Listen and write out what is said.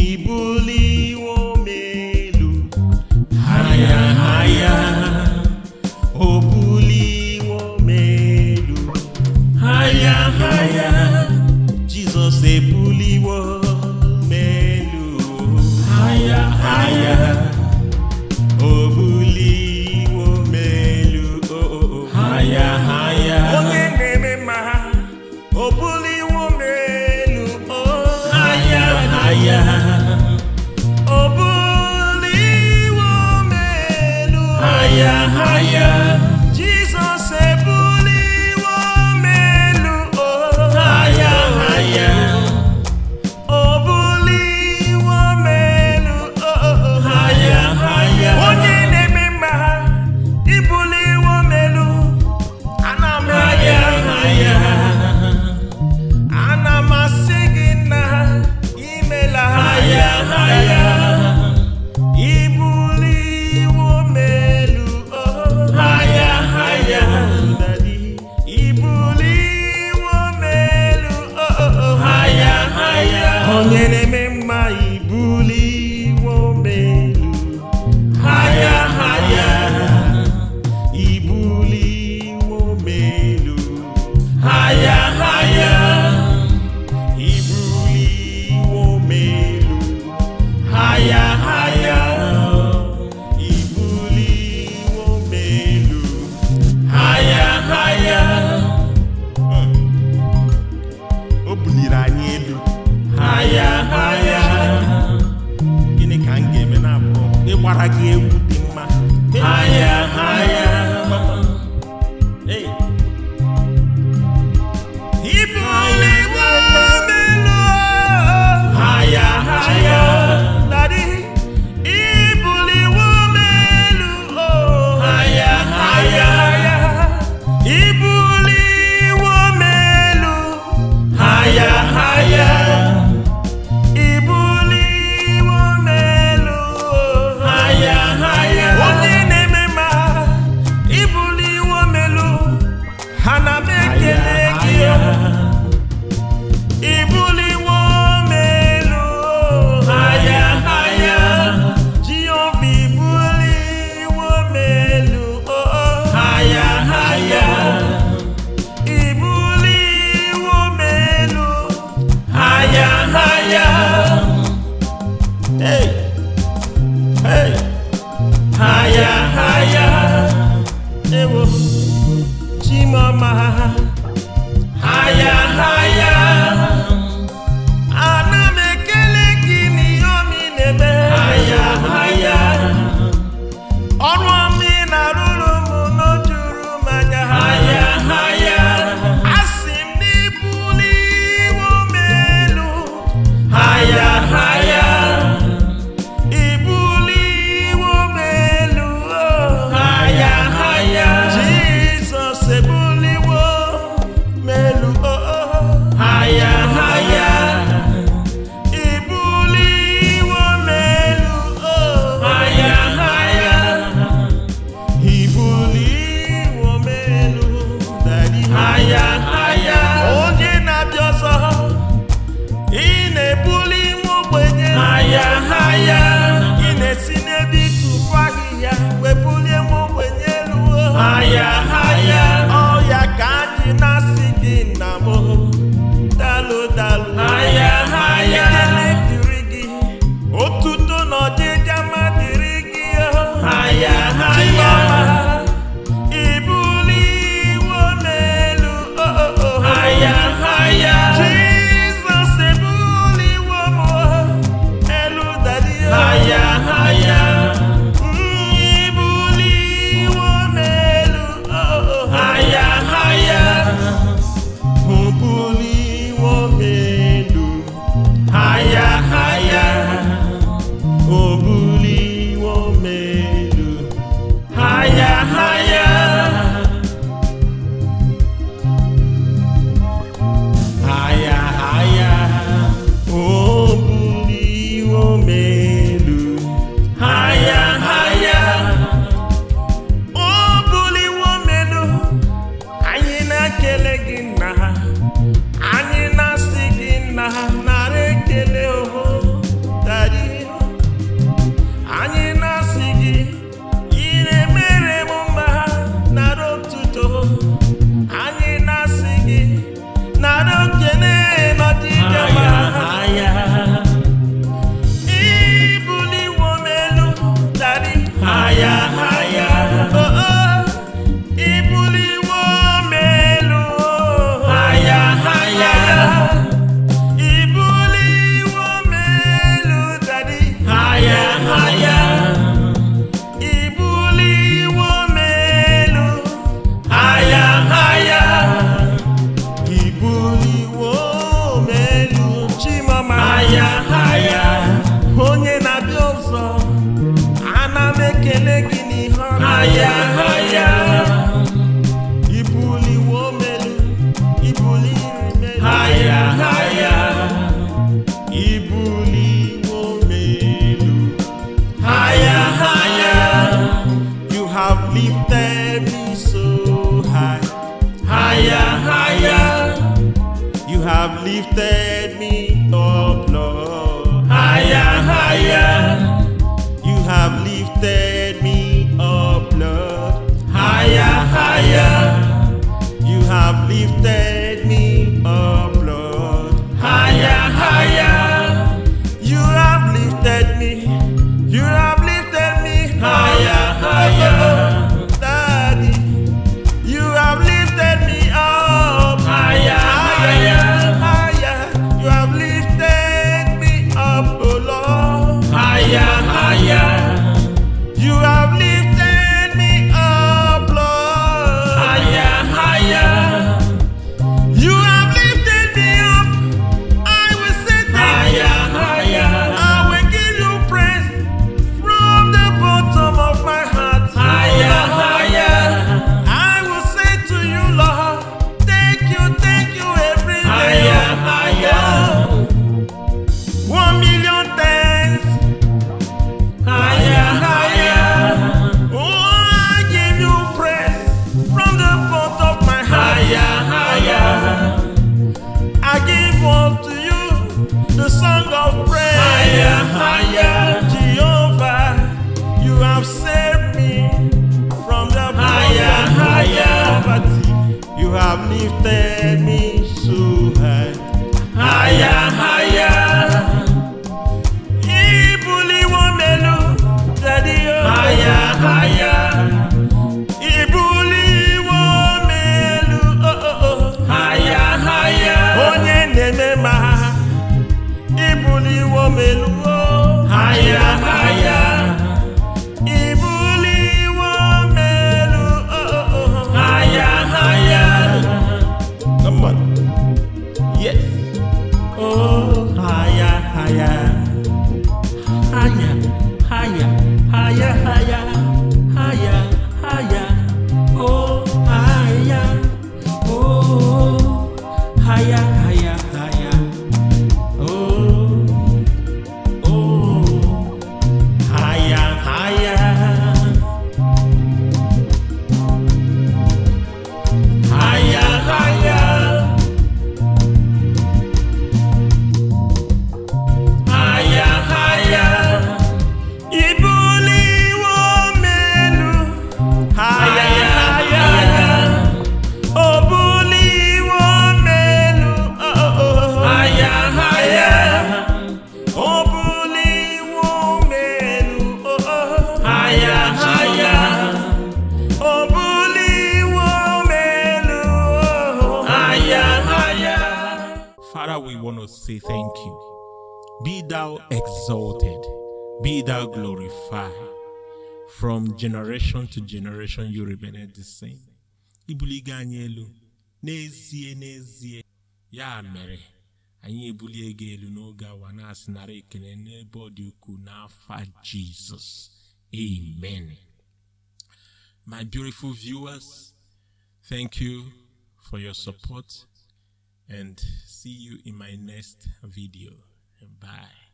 ibuli wo melu haya haya. enemy ee ha ya hayaewo chimeọmaha i have lifted have lifted me. yeah. say thank you. Be thou exalted, be thou glorified. From generation to generation, you remain the same. Ibuli anyị elu, n'ezie n'ezie. Ya mere, anyị ibuli gị no n'oge awa na-asị nara Jesus. Amen. My beautiful viewers, thank you for your support and see you in my next video. Bye.